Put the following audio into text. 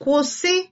kwụsị